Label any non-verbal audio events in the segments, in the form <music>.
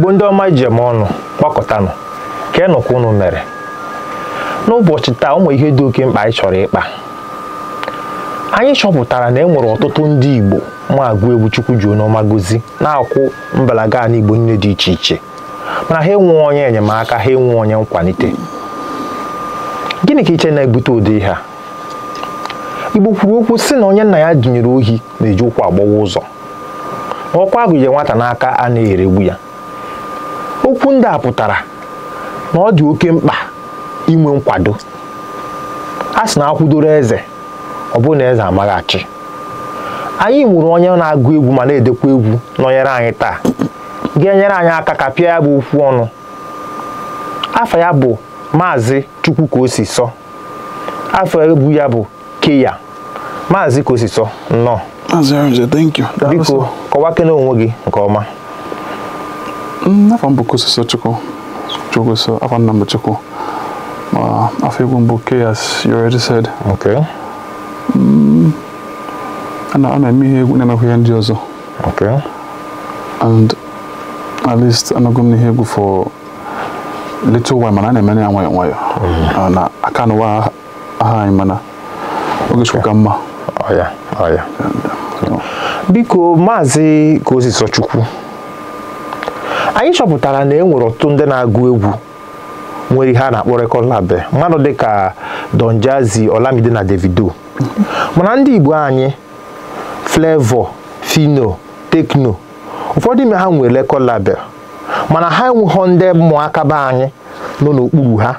igbo ndị ọma iji eme ọnụ gbakọtanụ ka enụkwa unu mere n'ụbọchị taa ụmụ ihe dị oke mkpa anyị chọrọ ịkpa anyị chọpụtara na e nwere ọtụtụ ndị igbo ma agụ egwu chukwu ji onyeọma gozi na-akwụ mbalaga ala igbo nne dị iche iche mana ha enwe onye enyemaka ha enwe onye nkwalite gịnị ka iche na-ebute ụdị ha igbo kwuru okwu sị na onye nna ya dụnyere ohi na-eji ụkwụ agbawa ụzọ ọkwa agụnye nwata n'aka a na-eregbu ya okwu ndị a pụtara na ọ dị oke mkpa inwe nkwado a sị na akwụdoro eze ọ bụrụ na eze amaghachi anyị nwere onye na-agụ egwu ma na-edekwa egwu nọnyere anyị taa ga-enyere anyị aka ka pịa ya bụ okwu ọnụ afọ ya bụ maazị chukwu ka o si sọ afọ egwu ya bụ keya maazị ka o si sọ nnọọ biko kọwakene onwe gị nke ọma Nafa mbuku sasa chuko. Chuko so afa number chuko. Uh, afigu mbuke as you already said. Okay. Mm. Ana ana mihe nena huya ndi ozo. Okay. And at least anagumni hegu for little while mana na mene anwa anwa. Mm. Ana akano wa aha imana. Okay. kama. Oh yeah. Oh yeah. Biko mazi kozi so chukwu. anyị chọpụtara na e nwere ọtụtụ ndị na-agụ egwu nwere ihe na-akpọ rekọd label mmadụ dịka Don Jazzy Olamide na Davido mana ndị Igbo anyị flevo Fino Tekno ụfọdụ ime ha nwere rekọd mana ha enweghọ ndị mmụọ be anyị nọ n'okpuru ha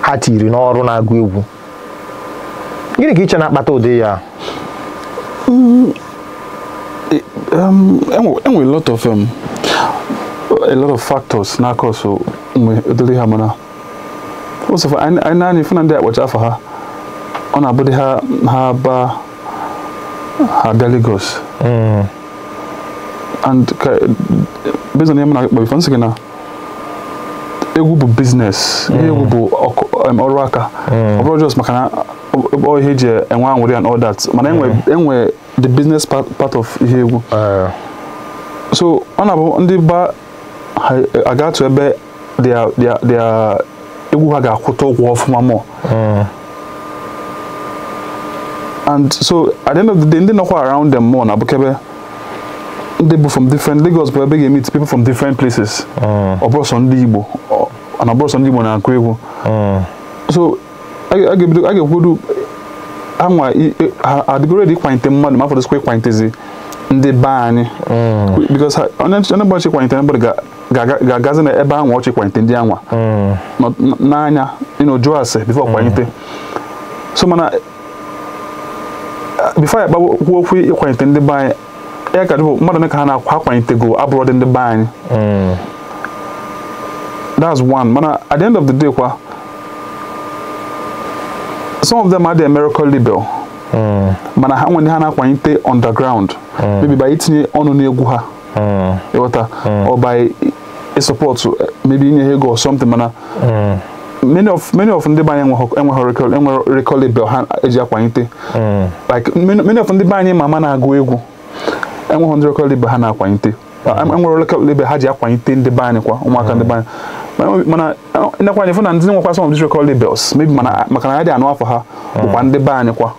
ha tiri n'ọrụ na-agụ egwu gịnị ka iche na-akpata ụdị ya a lot of factors na ka so mgbe edoliha mana ụsọfọ anyị naanị fụna ndị akpacha afọ ha ọ na-abụdị ha ha ba ha bịa Lagos and ka based on ihe m na-akpa bifo nsị gị na egwu bụ biznes ihe egwu mm. bụ um, ọrụ aka mm. ọ bụrụ just maka na ọ ihe eji enwe anwụrị and all that mana enwe mm. the business part of ihe egwu uh. so ọ na-abụ ndị ba aga atụ ebe egwu ha ga-akwụta ụgwọ ọfụma mọ and so at the end of the day ndị nọkwa around them more na-abụkebe ndị bụ from different Lagos bụ ebe ga-emeet people from different places ọ ndị Igbo na ọ ndị Igbo na-akụ egwu so a ga-ekwedu anwa e, adịgoredi ịkwalite mmadụ ma afọdụsikwa ịkwalitezi ndị be anyị mm. because onye ụbọchị ịkwalite anybody ga ga-agazi na ebe anwa ọchị kwanyite ndị anwa hmm. n'anya ịnọjụ ase bifo kwalite so mana uh, bifo ya kpagbuo okwu ịkwanyite ndị be anyị ya ka dịbụ mmadụ ka ha na-akwa akwalitego abụrụ dị ndị be anyị hmm. that's one mana at the end of the day kwa some of them are the miracle label hmm. mana ha nwere ha na-akwanyite underground maybe by itinye ọnụ n'egwu ha ịghọta ọ by support eh, maybe inye ego or something mana hmm. many of many of ndị label ha eji akwanyite hmm. like many of ndị banye na-agụ egwu enweghị ndị recall label ha na-akwanyite hmm. enwere recall label ha ji akwanyite ndị banye kwa ụmụaka ndị banye mana eh, ịnakwanye fụ na ndị nwekwa some of these labels maybe maka na ya dị anụ afọ ha bụkwa ndị be anyị kwa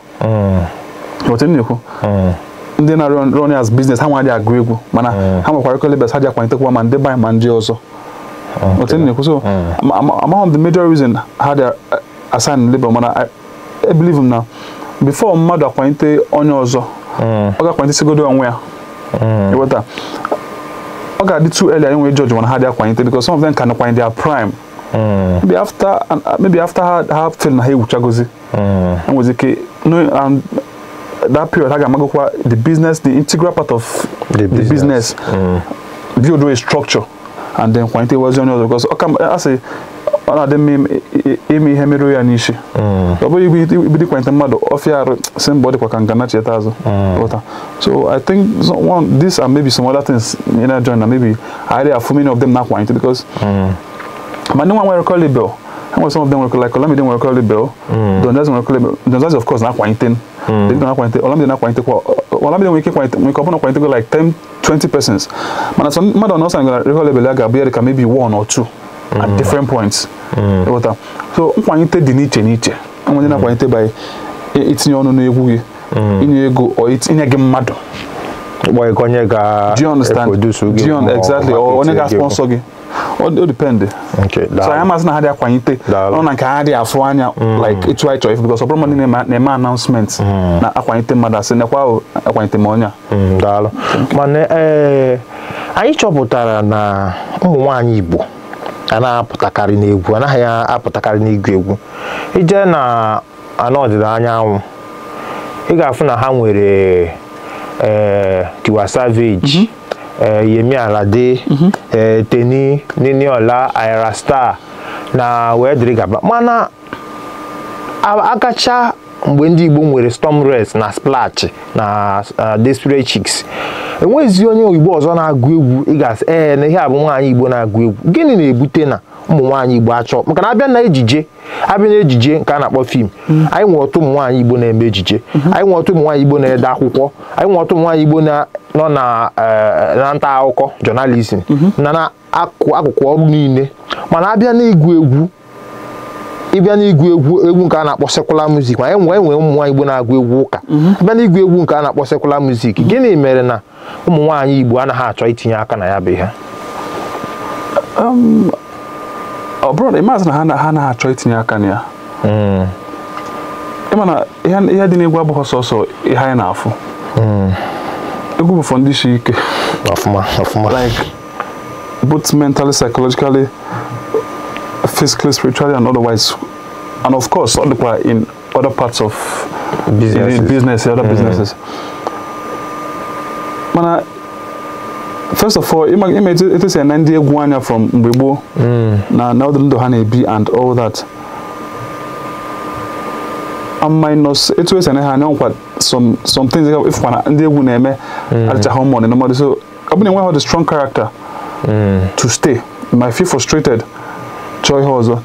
ndị na-run as business ha nwadị agụ egwu mana hmm. ha nwekwara kolebes ha ji akwanitekwa ma ndị banyị ma ndị ọzọ hmm. otu na-ekwu so among the major reason ha dị assign labor mana I believe na before mmadụ akwalite onye ọzọ hmm. ọ ga-akwalitesigodo onwe ya ịghọta ọ ga-adị too early enwe judge mana ha dị akwalite because some of them can akwalite their prime maybe after maybe after ha ha feel na ha ewuchagozi enwezi ike that period aga magokwa the business the integral part of the business, the business. Mm. build a structure and then kwante was on because okay I say ọ na-adị mma ime ihe mere ya n'isi ọ bụghị ibido ikwente mmadụ ọfịa arụ si mba ọ dịkwa ka ngana cheta azụ ụta so i think one this and maybe some other things you know join na maybe i dey afụ many of them na akwanyete because ma mm. ndị nwa nwere kọlibel And when some of them were like Olamide were called Bell, Dondas were called Dondas of course not Quentin. Hmm. They did not Quentin. Olamide not Quentin. Olamide we Quentin. We come on Quentin like 10, 20 persons. Man, some man don't know something like Recall Bell like Abier can maybe one or two at hmm. different points. Mm. What uh, so Quentin di niche niche. And when not hmm. Quentin by it's your own gị inye ego or it's gị mmadụ. Do you understand? Do you exactly? Or onye ga sponsor gị. Ọ o depend so anyị amasị na ha dị akwanyite ọ na nke ha dị afụ anya mm. like etu anyị chọrọ ife because ọbụrụ mmadụ na-eme announcement mm. na akwanyite mmadụ asị nekwa akwanyite m onye a mm, daalụ mana eh, anyị chọpụtara na ụmụ nwaanyị Igbo a apụtakarị n'egwu anaghị apụtakarị n'igwu egwu ije na ana ọdịda anyanwụ ị ga-afụ na ha nwere ee eh, Tiwa Savage mm-hmm. Eh, Yemi Alade mhm. eh, Teni Niniola Ayra sta na wee gaba mana akacha mgbe ndị Igbo nwere Storm res na splach na eh, Desperate Chicks enweghị onye Igbo ọzọ na-agụ egwu ị ga ee na ihe abụ nwaanyị Igbo na-agụ egwu gịnị na-ebute na ụmụ nwaanyị igbo achọ maka na abịa na ejije abịa na ejije nke a na-akpọ fim anyị nwere ọtụ ụmụ nwaanyị igbo na-eme ejije anyị nwere ọtụ ụmụ nwaanyị igbo na-ede akwụkwọ anyị nwere ọtụ ụmụ nwaanyị igbo nọ eh, na nta akụkọ jọnalizim na akụkụ ọrụ niile mana abịa n'igwu egwu ịbịa egwu egwu nke a na-akpọ sekula music ma e nwee e nwee ụmụ nwaanyị igbo na-agụ egwu ụka abịa igwu egwu nke a na-akpọ sekula muzik gịnị mere na ụmụ nwaanyị igbo anaghị achọ itinye aka na ya bụ ihe um, ọ bụrụ na ịmazị na ha na ha na-achọ itinye aka na ya ịma na ihe sọsọ ihe anyị na-afụ egwu bụ for ndị like both mentally psychologically physically spiritually and otherwise and of course ọ dịkwa in other parts of business other hmm. businesses mana uh, first of all it is an etu esi from mgbe Now, now na ọdụ honey bee and all that minus it was an ha anya some some things ịfụkwa na ndị egwu na-eme adịchaghị ụmụ ọdị n'ụmọdụ so ọ bụrụ na eme home umu odi numodu so I buru one enweghi a strong character mm. to stay my feel frustrated Joy ihe ọzọ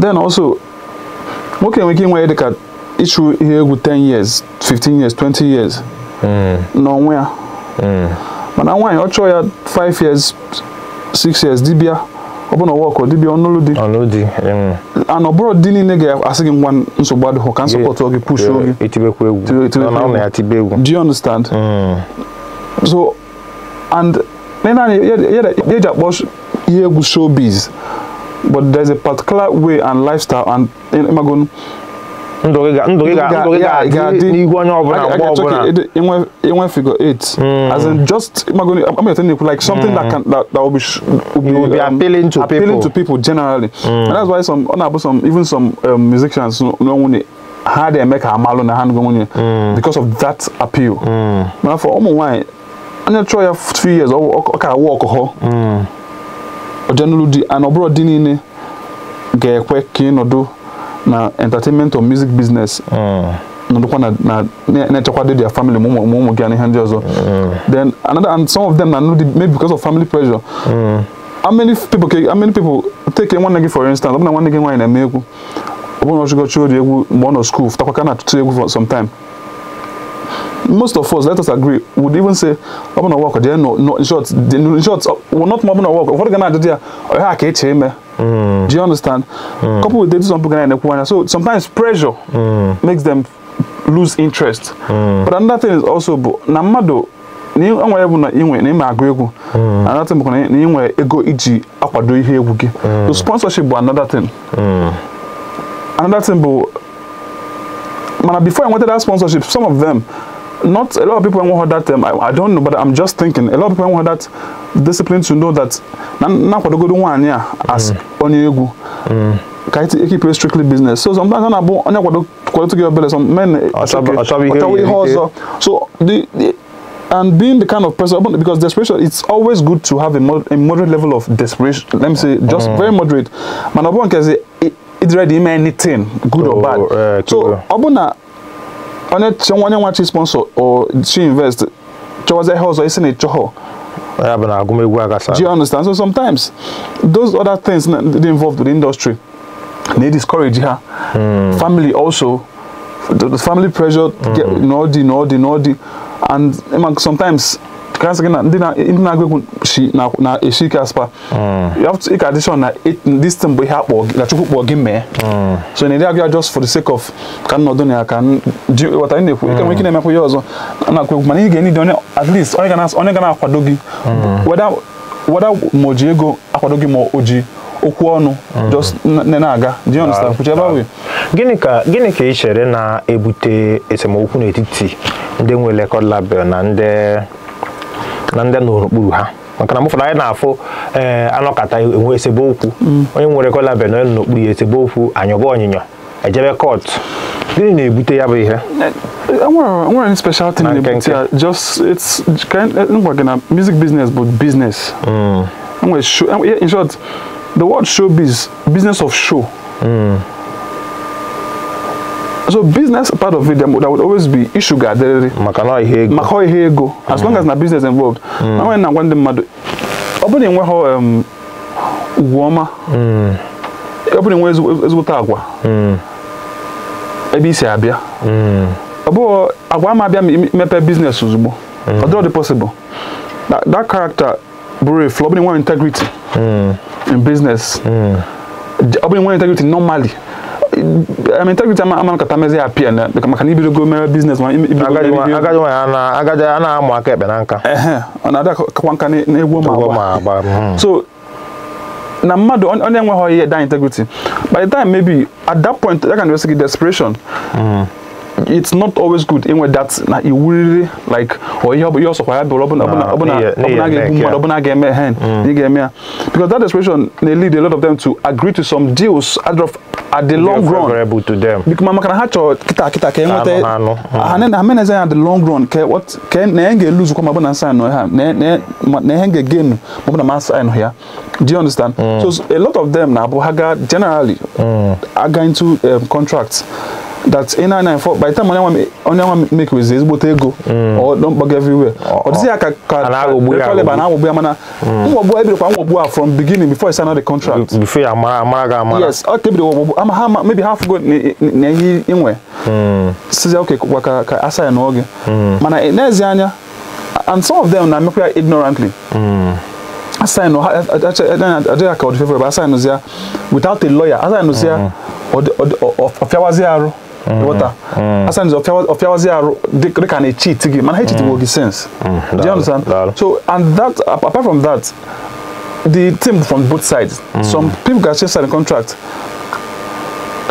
then also nwoke we ike inwe dịka ịchụ ihe with 10 years 15 years 20 years mm. Nowhere. Mm mana nwaanyị ọ chọọ ya 5 years 6 years dibịa ọbụna ọwa ọkọ dibịa ọnụlụ di ana ọbụrụ di niile ga-asị gị ngwa nsogbu adịghị ka nsọpọtụ oge push oge do you understand mm. so and eji akpọ ihe egwu showbiz but there's a particular way and lifestyle and ịmagon ndụ gị ga-adị n'ihu onye ọbụla mgbe ọbụla enwe figure eight hmm. as in just imagine I'm telling you like something mm. that hmm. can that, that will be, will be, will be um, appealing to appealing people. to people generally mm. and that's why some ọna-abụ some even some um, musicians n'onwunye ha dị eme ka amalụ na hand. ngụ nwunye hmm. because of that appeal mana for ụmụ nwaanyị onye chọọ ya two years ọ ka awụ ọkụkọ ọjenụlụ di and ọ bụrụ di niile ga-ekwe ka ịnọdụ na entertainment or music business hmm. nọdụkwa na-echekwado their family ma ụmụ gị na ihe ndị ọzọ then another and some of them na maybe because of family pressure hmm. how many people how many people take nwanne gị for instance ọ nwanne gị nwaanyị na egwu ọ bụrụ na ori egwu mgbe ọ nọ school fụtakwa ka na-atụtụ egwu for some time most of us, let us agree, would even say, I'm work, no, no, in short, in short, uh, na work. Mm. Do you understand? Mm. Couple with some and they end So sometimes pressure mm. makes them lose interest. Mm. But another thing is also na mmadụ enwere bụ na inwe na ime agụ egwu mm. another thing bụ na inwe ego iji akwado ihe egwu gị. Mm. So sponsorship bụ another thing. Mm. Another thing bụ mana before I nweta that sponsorship some of them not a lot of people want that um, I, I, don't know but i'm just thinking a lot of people want that discipline to know that na the good one yeah as mm. onye you mm. ka it keep strictly business so sometimes on abo onye kwado kwado to give belly some men ọchọbụ eh, so the, the and being the kind of person because desperation it's always good to have a, mod, a moderate level of desperation let me say just mm. very moderate man obon can say it's ready anything good oh, or bad uh, so Abuna, on kyɛ wɔn ne wɔn sponsor or to invest kyɛ wɔn sɛ ɛhɛ ɔsɔ ɛsɛ ne kyɛ hɔ. do you understand so sometimes those other things that dey involved with the industry na e discourage ha. Mm. family also the, the family pressure. Mm -hmm. get nɔɔdi nɔɔdi nɔɔdi and sometimes. kasị gị na ndị na-agụ egwu na-esi ike aspa mm. ịka ka na this thing bụ ihe akpọ na chukwu kpọọ gị mee mm. so na ndị agụ just for the sake of ka nnọdụ na ya ka ghọta ị na-ekwu ike nwere mm. ike na-emekwa ihe ọzọ na-akụ egwu mana ị ga-enye dị onye at least onye ga na-akwado gị wada ma o ji ego akwado gị ma o ji okwu ọnụ just na-aga ah. gịnị ka gịnị ka ị chere na-ebute esemokwu n'etiti ndị nwe record label na ndị na ndị nọ n'okpuru ha maka na mụfọdụ anyị na-afụ ee eh, anọkata enwe esemokwu onye nwere kọlaben onye n'okpuru ya esemokwu anyọba ọnyịnyọ ejebe kọtụ gịnị na-ebute ya bụ ihe eh, nwere special thing na-ebute ya just it's kind e, e, ngwa gị na music business bụ business hmm. show. in short the word showbiz business of show hmm so business part of it there would always be issue. aderịrị maka na ihe ego maka ihe ego as long as na business involved mm. na nwere na nwanne mmadụ ọ bụrụ na um, ugwu ọma mm. ọ bụrụ na enwe ezigbote agwa mm. ebe isi abịa ọ bụghị agwa ama abịa mepe biznes ozugbo ọ dịrọ dị possible that character bụrụ efu ọ bụrụ na enwe integrity in business ọ bụrụ na enwe integrity normally integrity ama ama katamezi apia na kama kan ibido go mere business ma ibido agaje wa na agaje ana amu aka ebe na nka eh ona ada kwanka ni na egwo ma agba so na mmadụ onye enweghị ihe da integrity by the time maybe at that point that kind of like desperation it's not always good inwe that na iwuriri like or ihe ihe ọsọkwa ya bụrụ ọbụna ọbụna ọbụna ga-egbu mmadụ ọbụna ga-eme hen ị ga-eme because that desperation na lead a lot of them to agree to some deals at the long run favorable to them Because mama can have to, kịta kịta ka I mean, meneze say at the long run ka what ka na ihe lose, eluzu kwa mabụ na ne ne na ihe ga-egenu na sign do you understand mm. so a lot of them na bohaga generally mm. going to um, contracts that ị na-anya for by the time onye nwa make wezi ezigbote ego ọ mkpọga everywhere ọ dịzi ya ka kaliba na-agbogbu ya mana mgbogbu kwa nwọgbu a from beginning before sign the contract before ya mara mara ga amara yes ọ kebiri ọgbogbu ama ha maybe half go na ihe inwe sizi oke kwa ka ka asa ya n'oge mana n'ezi anya and some of them na mekwa ya ignorantly asainu adịghị ka ọdịfefe ebe asainụzi ya without a lawyer asainụzi ya ọfịawazi arụ Mm-hmm. water mm. asa nzo ofia ofia wazi aro they can a cheat gi man cheat mm. Mm-hmm. will sense mm-hmm. do you understand so and that apart from that the team from both sides mm. some people can change the contract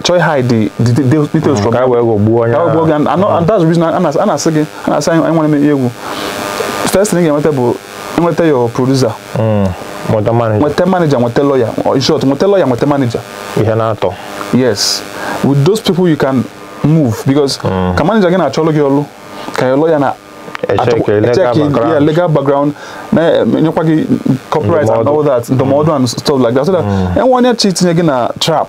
try hide the the, the, details mm. from that go bu go bu and, and, mm. and that's the reason I'm not I'm not saying I'm not saying I want to make you first thing you want to do you want to your producer mm. Mwete manager. Mwete manager, mwete lawyer. In short, mwete lawyer, mwete manager. Ihe na not Yes. With those people you can move because mm. Ah. ka manager na-achọ ọlụ gị ọlụ ka ya lawyer na check yeah, legal background na eh, nyekwa gị copyright and all that ndụmọdụ and stuff like that so that mm. enwe onye chi tinye gị na trap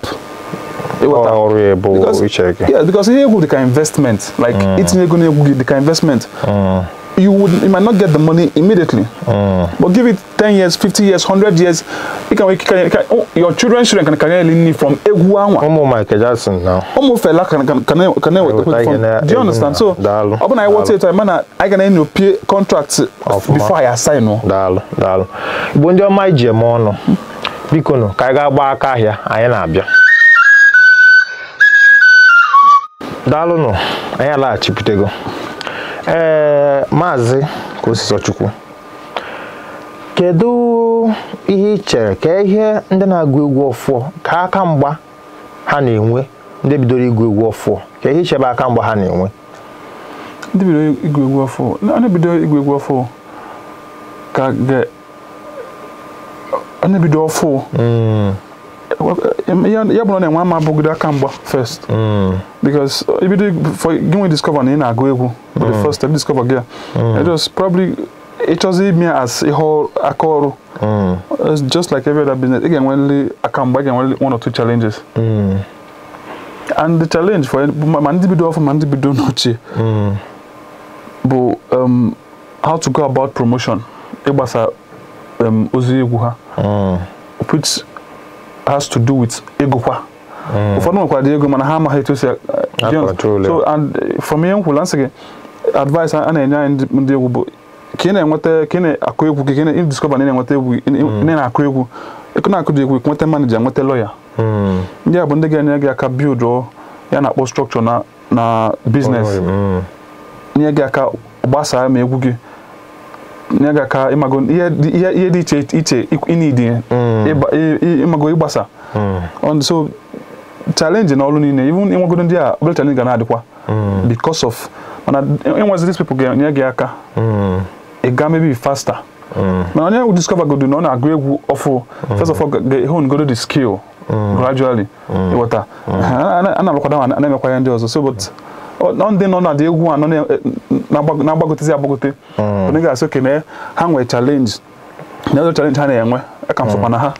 ịghọta ọrụ ya bụ iche yeah because ihe egwu dị investment like mm. itinye ego na egwu gị dị investment mm you would you might not get the money immediately. Mm. But give it 10 years, 50 years, 100 years, you can, you can, you can oh, your children children can can learn from Eguanwa. Omo Michael Jackson now. Omo fella can can can can from. Uh, Do you understand? So, open I want to man I can end your pay contract before I assign no. Dal, dal. Bonjo my jemo no. Biko no, ka ga gba aka ahia, anyị na-abịa. Daalụ nụ, anyị alaghachipụtego. ee maazị Kosisochukwu kedu ihe ị chere ka ihe ndị na-agụ egwu ọfụọ ka aka mgba ha na-enwe ndị bidoro igwu egwu ọfụọ ka ihe ichebe aka mgba ha na-enwe ndị bidoro igwu egwu ọfụọ ndị bidoro igwu egwu ọfụọ ka ga onye bido ọfụụ hmm. Eh, eh, yabu na enwe ama abụgide aka mgba first mm. because eh, if you discover we ị na-agụ egwu for the mm. first step discover gị mm. It was probably it was me as a aka It's just like every other business Again, when ga-enweli aka Again, i one or two challenges and the challenge for ma ndị bido ọfụ ma ndị bido n'ochie bụ um, how to go about promotion ịgbasa um, ozi egwu ha which has to do with ego kwa ụfọdụ mm. nwekwara dị ego mana ha amaghị etu esi so and eh, from ihe m eh, kwula nsị gị advice a na-enye anyị ndị egwu bụ ka ị na-enweta ka ị na-akụ egwu gị ka ị na-ediskọba na ị na-enweta egwu ị na-akụ egwu ịkụ na-akụ dị egwu nweta manija mm. nweta lọya ndị a bụ ndị ga-enye gị aka bild oh, ya na-akpọ strọkchọ na na biznes nye gị aka gbasaa eh, ma egwu gị na-agaka ịmago ihe dị iche iche ịnidi mm. ịmago ịgbasa mm. so challenge na ọrụ niile even ịnwagodo ndị a obere challenge ga na-adịkwa mm. because of mana enwezi these people ga-enye gị aka ịga maybe faster mana onye we discover godo na ọ na-agụ egwu ọfụ first of all ga-ehon godo the skill gradually ịghọta a na-alụkwada ma na-emekwa ya ndị ọzọ so but ndị nọ na dị egwu a nọ e, na-agbagotezi agbagote onye ga-asị oke na ha nwere mm. chalenji na ọzọ chalenji ha na-enwe aka m sokwa na ha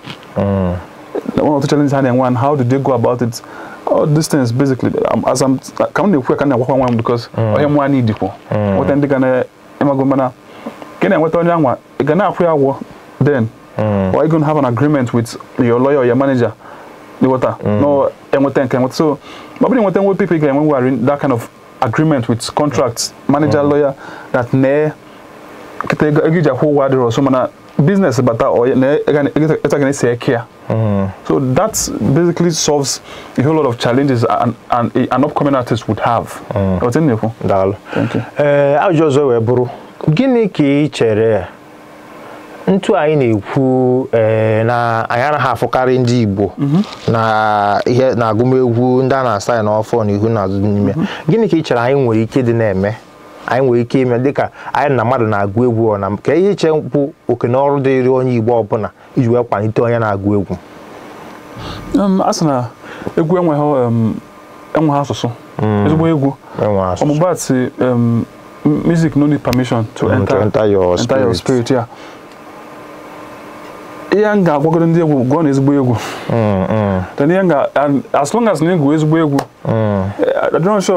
one of the challenges ha na-enwe and how do they go about it all these things basically um, as I'm ka m na-ekwu ka m na-agwakwa nwa m because onye nwa anyị dịkwu nweta ndị ga na-emago mana ka na-enweta onye anwa ị ga na-akwụ ya agwọ then or mm. you gonna have an agreement with your lawyer or your manager ịghọta mm. no enweta nke enweta so ma ọ bụrụ enweta nwe people ị ga-enwe ngwegharị that kind of agreement with contract manager mm. lawyer that ne kita egija ko wa dero so mana business bata or ne Ega ne eta gane se care mm-hmm. so that basically solves a whole lot of challenges an an, an upcoming artist would have mm. o tin ne ko dal thank you eh uh, ajo zo we buru gini ki chere ntu anyị na-ekwu eh, na anyị anaghị afụkarị ndị Igbo mhm. na ihe na agụmegwu ndị a na-asa ya n'ọfọ na ihu na azụ n'ime mhm. gịnị ka ị chere anyị nwere ike dị na-eme anyị nwere ike ime dịka anyị na mmadụ na-agụ egwu ọ na ka ihe iche mkpu oke na ọrụ dịrị onye Igbo ọbụla iji wee kwalite onye na-agụ egwu um, a sị na egwu enweghị um, asụsụ mm. ezigbo egwu ọmụgbatị um, music no need permission to mm, enter your spirit ya ihe m ga-agwagoro ndị egwu gụọ na ezigbo egwu mm, mm. as long as na egwu ezigbo egwu adịrọnshọ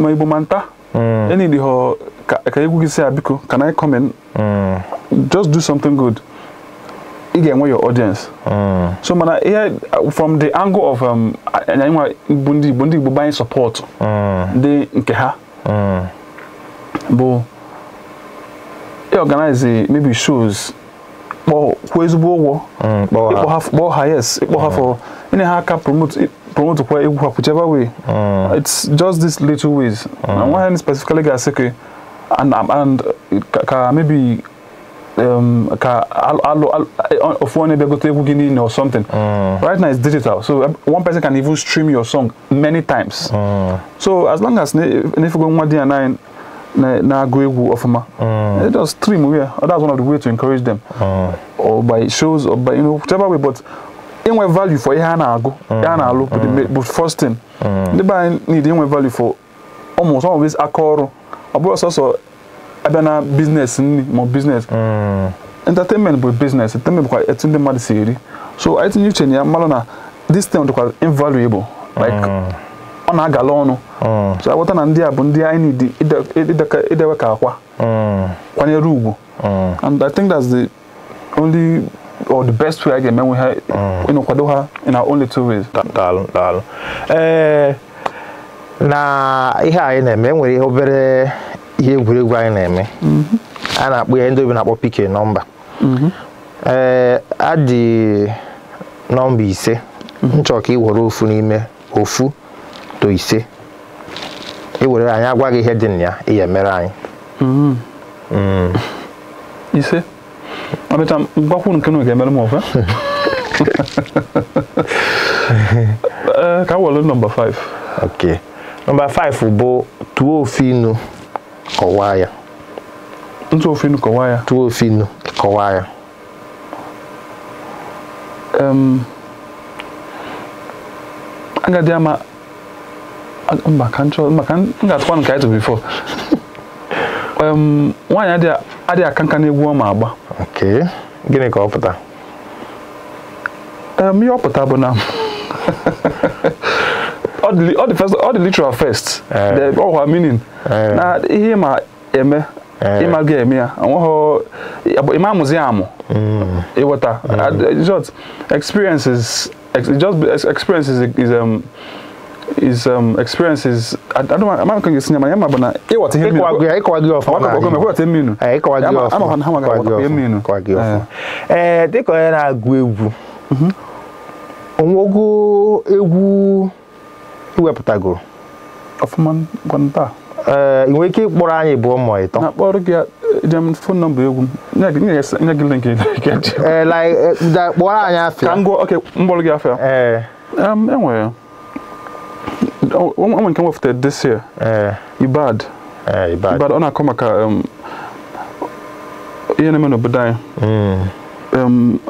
ma igbo ma nta enidi ha ka egwu gị si ya biko can I come in mm. just do something good ị ga-enwe your audience so mana ihe from the angle of anyịnwa bụ ndị igbo ndị igbo gbanye support ndị nke ha bụ organize eh, maybe shows kwa ezigbo ụgwọ ịkpọ ha yes ịkpọ ha for any hack aka promote promote kwa egwu ha whichever way it's just these little ways na nwa hen specifically I say, and and ka maybe um, ka alo ofu onye bịa gote egwu gị niile or something right now it's digital so one person can even stream your song many times so as long as if na-efego nwa di ya nine na na-agụ egwu ọfụma just stream where that's one of the way to encourage them mm. or by shows or by you know whichever way but inwe value for ihe a na-agụ ihe hmm. a na-alụ but, mm. but first thing hmm. ndị be anyị need inwe value for almost always aka ọrụ ọ bụrụ sọsọ abịa na business nri ma business hmm. entertainment bụ business entertainment bụkwa etu ndị mmadụ si eri so I tinye you, na ya mmalụ na this thing dịkwa invaluable like mm. ọ na-agala ọnụ hmm. so aghọta na ndị a bụ ndị anyị need idewe ka akwa hmm. kwanyere ugwu hmm. and I think that's the only or the best way I ga-eme nwe ha ịnọkwado ha in our own little ways. Daalụ daalụ ee eh, na ihe anyị na-eme enwere ihe obere ihe egwuregwu anyị na-eme mm-hmm. a na-akpọ ya ndị obi na-akpọ pike nọmba mm-hmm. ee eh, adị nọmba ise m mm-hmm. chọrọ ka ị were ofu n'ime ofu moto ise ewere anyị agwa gị ihe dị na ya ihe mere anyị hmm. Hmm. ise amịta mgbakwuru nke na ga-emere m ofe <laughs> eh, ka were nọmba 5 ok nọmba 5 bụ tụọ ofe inu kọwaa ya ntụ ofe inu kọwaa ya tụọ ofe inu kọwaa ya agadi ama mba mba maka m ga-atụkwa nke anyị tụrụ bifo nwaanyị adịghị aka nka n'egwu ọ ma agba gịnị ka ọ pụta ihe ọ pụta bụ na <laughs> ọ dị literal first eh. ọwa meaning eh. na ihe ịma eme eh. ịma ga eme ya nweghị ịma amụzi amụ hmm. ịghọta hmm. just experiences just experiences is um, his um, experiences. I, don't know I'm not going to my but I. It was him. I called you off. I called you off. I I called you off. I'm on how you off. Eh, egwu mm-hmm. Ọfụma gwanta. Ee, eh, ị nwere ike ịkpọrọ anyị ịtọ. Na-akpọrọ gị jem fon nọmba egwu nye gị link gị <laughs> eh, eh, one, woman came off the, this year. Uh, Ibad. Uh, Ibad. Ibad. Ona come ka um. Yene meno budai. Mm. Um,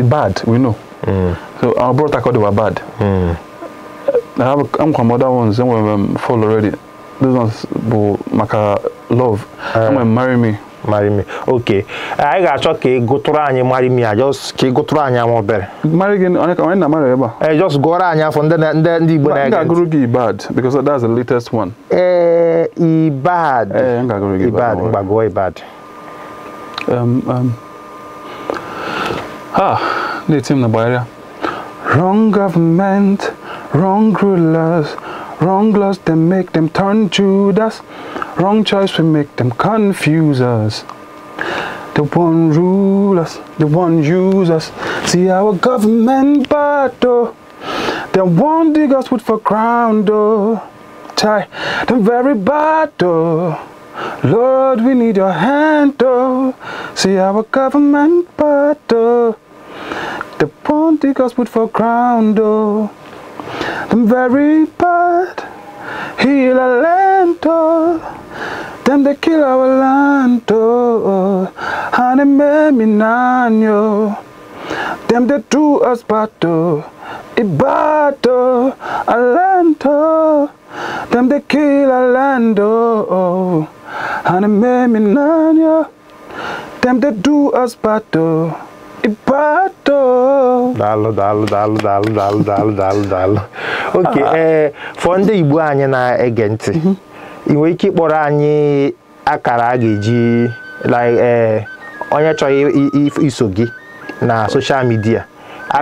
Um. bad. we know. Mm. So our brother called they were bad. Mm. I have I'm from other ones. Some of them um, fall already. Those ones, but maka love. Uh, Someone marry me. marry me okay I got ga-achọ ka ị gụtụrụ anyị marry me I just go ị gụtụrụ anyị ama obere marry gị onye ka onye na marry ebe a eh just gụọrọ anyị afọ ndị ndị ndị Igbo na-ege ngagụrụ gị bad? because that's the latest one eh bad. eh ngagụrụ gị Ibad ngagụọ bad? um um ha na-eti m the gbagharịa wrong government wrong rulers wrong laws They make them turn Judas Wrong choice will make them confuse us. The one rule us, the one use us. See our government battle. The one dig us with for crown though. Tie the very battle. Lord, we need your hand though. See our government battle. The one dig us with for crown door. The very battle. Hila lento kill our walanto Honey, me minanyo Dem de tu aspato Ibato alento Dem de a lando Honey, me them they de us aspato ipato daalụ daalụ daalụ daalụ daalụ daalụ daalụ daalụ Ok ee fọ ndị igbo anyị na-ege ntị mhm. ị nwere ike ịkpọrọ anyị akara a ga-eji eh, onye chọrọ iso gị na soshal midia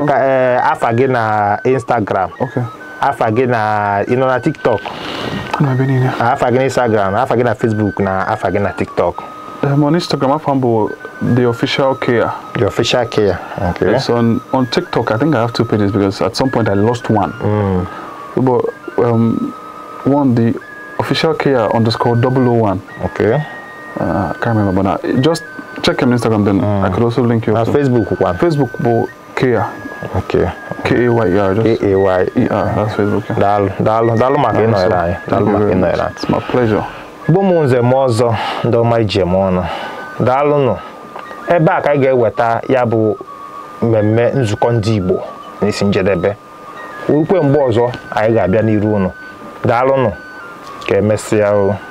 eh, afa gị na instagram afa gị na ị nọ na tiktok afa gị na instagram afa gị na facebook na afa gị na tiktok Eh, I'm on Instagram. I found the official care. The official care. Okay. It's on on TikTok. I think I have two pages because at some point I lost one. Mm. But um, one the official care underscore 001. Okay. Uh, I can't remember but now. Just check on Instagram. Then mm. I could also link you. Now uh, Facebook one. Facebook, but care. Okay. K A Y E R. K A Y E R. That's Facebook. Yeah. Dal dal dal makinoi rai. Dal makinoi rai. Eh. It's my pleasure. bụ m nze m ọzọ ndị ọma ije m ọnụ daalụnụ ebe a ka anyị ga-eweta ya bụ mmemme nzukọ ndị Igbo n'isi njedebe ukwe mgbe ọzọ anyị ga-abịa n'iru unu daalụnụ ka emesịa o